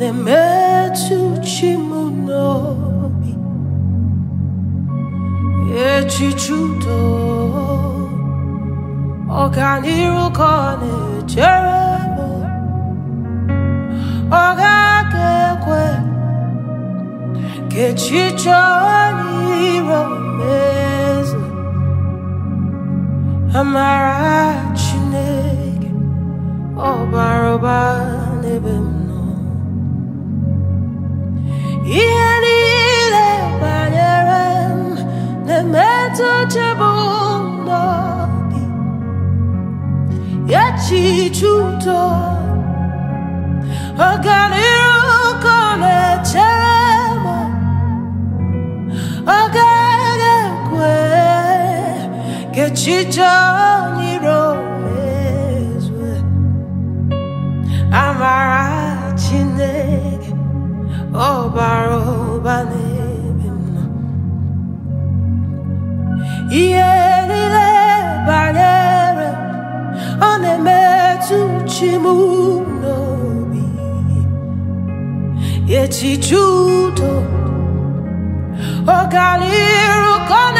Nemetsuchimonobi Echichudo Ọganirukan ejerebo Ọgakekwe Kechicho oniro mezu Amara instituto ogaliruko lechemo ogagekwe kechicho kimunobi yechijudo ogaliru kona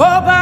Oh,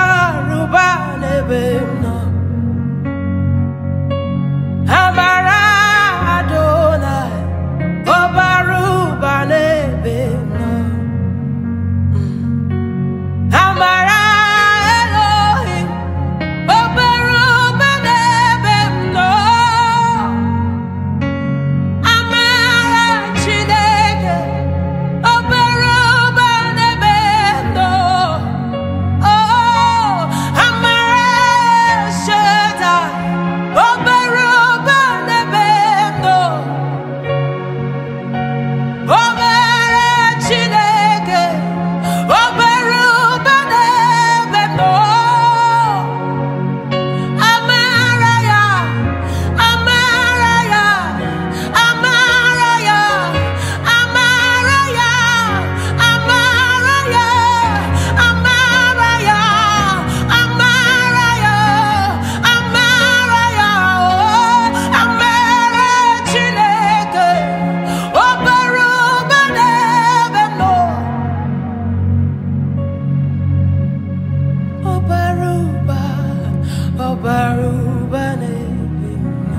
baruba nebina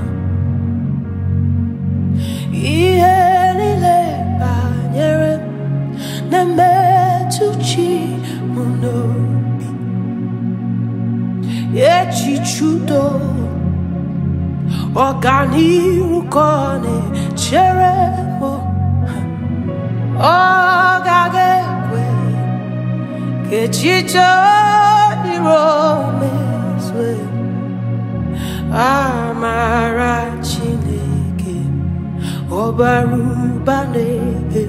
ihe niile banyere na-emetụ chi m n'obi echiche udo ọganihu ka ọ na-echere amara chineke ọbara ụba na-ebe